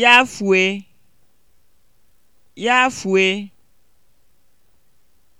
yafùe yafùe